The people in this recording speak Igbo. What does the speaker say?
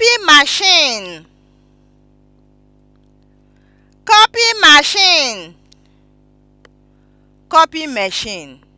copy machine copy machine machine